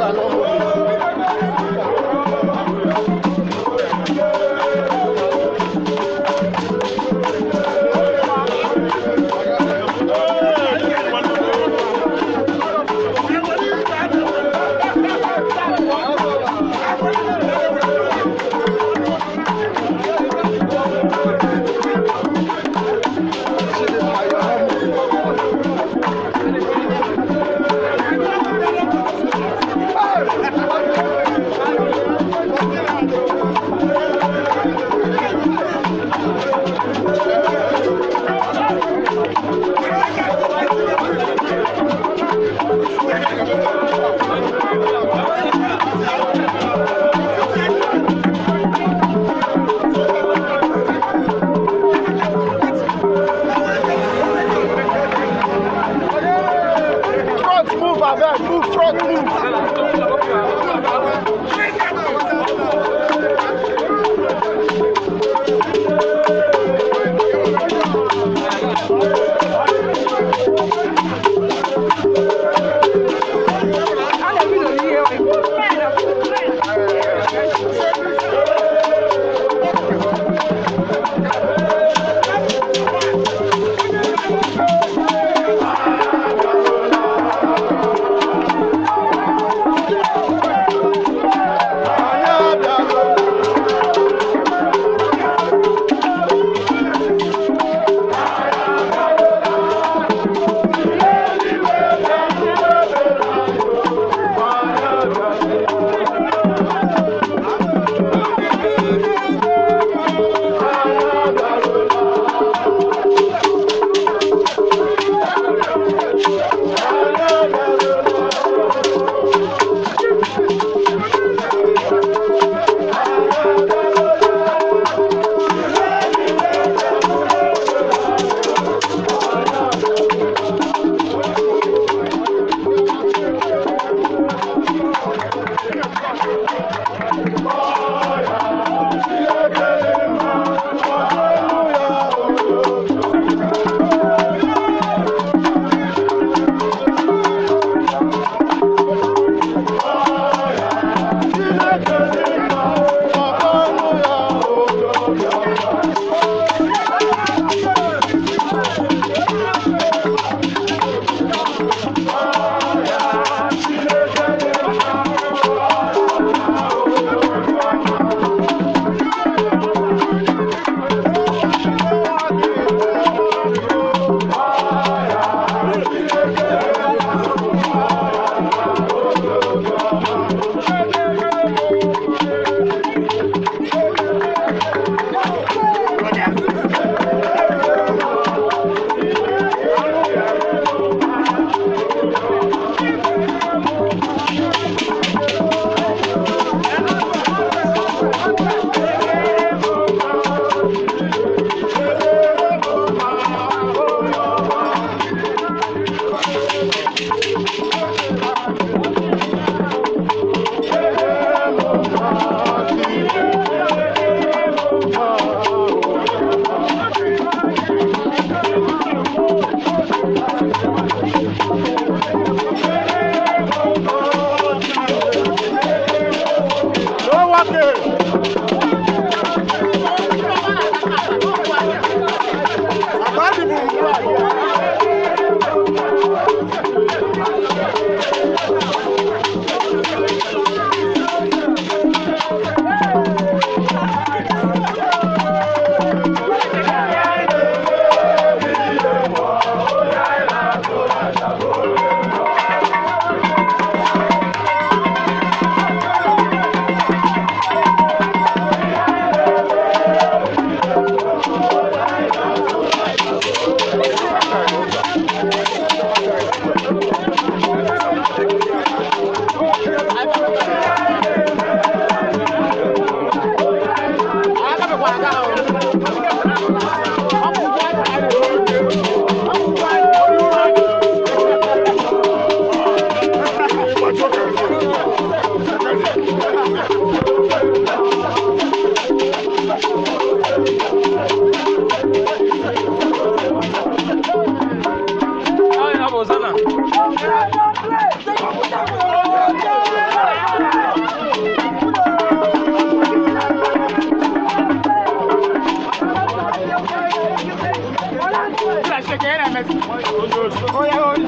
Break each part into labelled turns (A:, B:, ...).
A: 完了 Mehmet. Koy, koy, koy.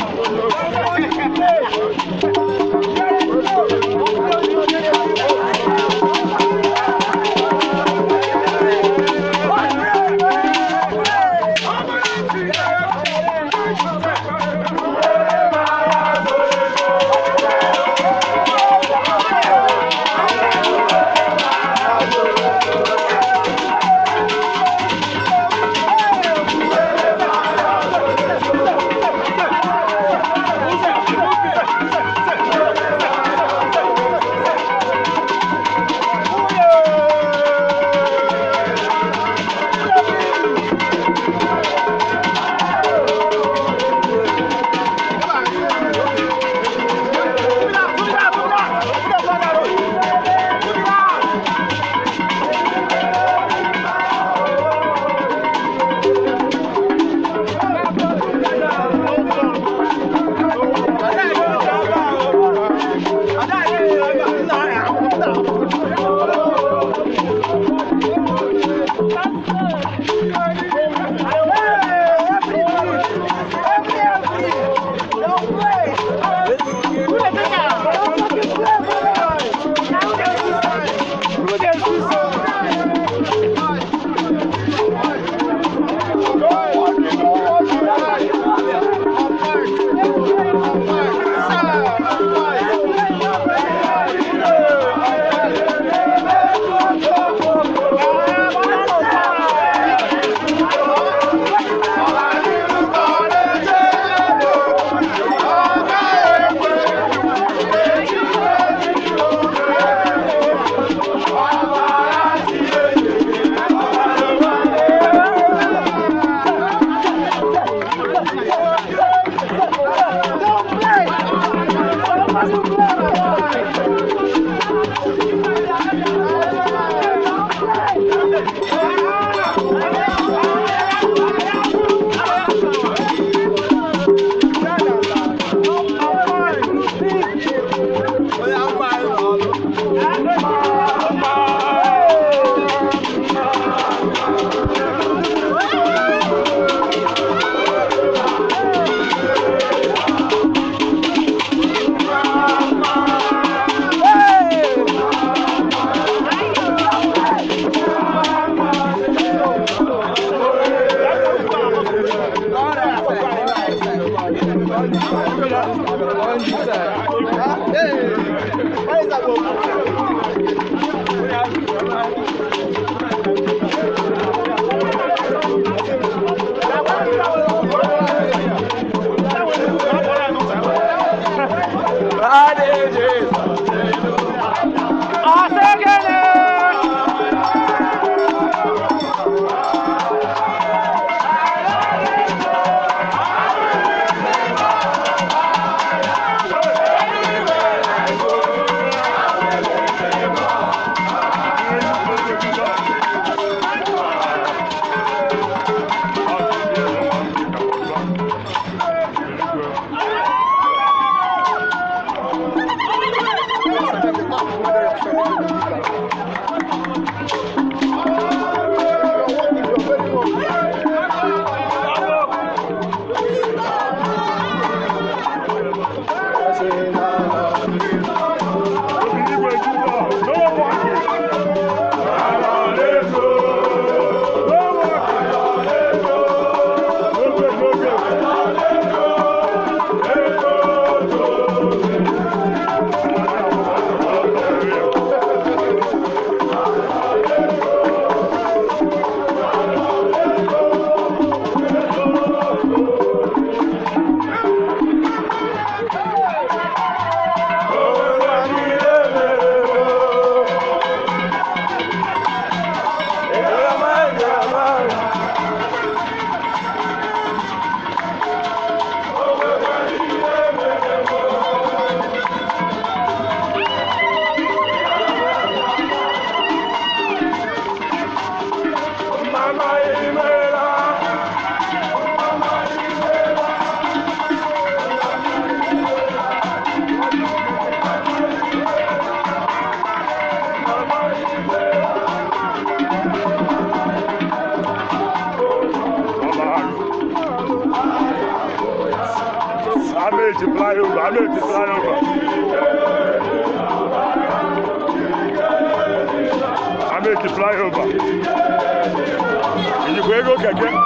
A: Georgia.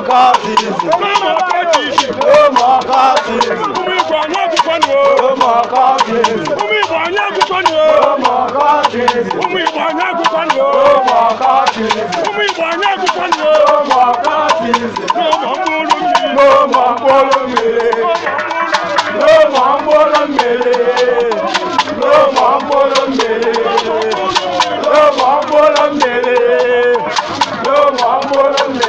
A: oh ló mọ kọ́ọ̀tìsì. ló mọ kọ́ọ̀tìsì. kúmú ìbò àwọn àgùkọ́ ni o. ló mọ kọ́ọ̀tìsì. kúmú ìbò àwọn àgùkọ́ ni o. ló mọ kọ́ọ̀tìsì. kúmú ìbò àwọn àgùkọ́ ni o. ló mọ kọ́ọ̀tìsì. kúmú ìbò àwọn àgùkọ́ ni o. ló mọ kọ́ọ̀tìsì. ló mọ kóró mi. ló mọ kóró mi. ló mọ kóró mi. ló mọ kóró mi. ló mọ kóró mi. ló mọ kóró mi.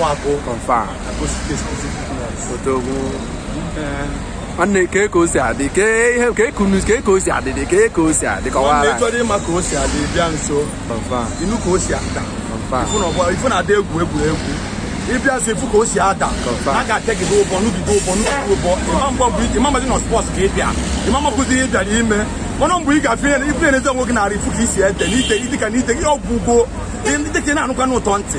A: agụ agụ nwanne kee ka o si adị kee ihe kee ka ka o si adị dị kee ka o si adị kọwara ka si adị nso inu ka o si ifu na adị egwu egwu. ịbịa ifu ka o si ada a gị ụbọ ụbọ ụbọ ịma bụ ike ịma na ka ị bịa ịma ọnụ ga na na ntị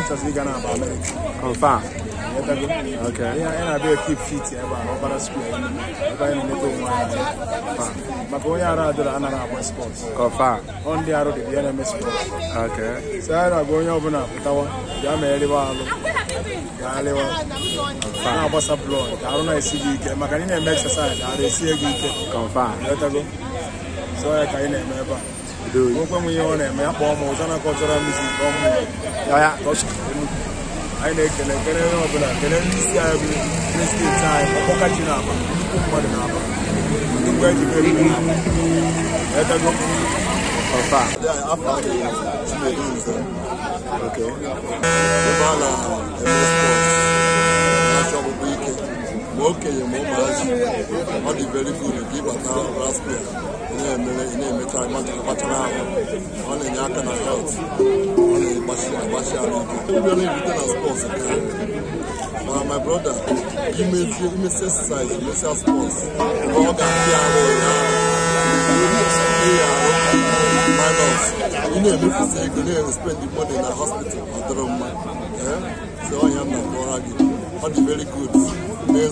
A: interest gị na-aba Amerịka confam ya na-abịa keep fit ebe a ọbara square na onye arụ dị ya na-eme spọt so na onye ọbụla pụtawa bịa ma eriwa na-agbasa blọd na-esi ike na ị na-eme exercise arụ esie gị ike so ya ka anyị na-eme ebe a Mwen mwen ma okenye ma ụmụazị ọ dị very good ka ịbata raspia ị na-emecha kpachara ahụ ọ na-enye aka na health ọ na-agbachi agbachi ahụ ike ịbịara ebute na spọts ma my brother imezie imesi exercise imesia spọts ọ ga-adị arụ minus ị na-emefusi ego na-espendi money na hospital ọ dịrọ mma ee si ọhịa na gị ọ dị very good mes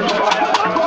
A: bɔs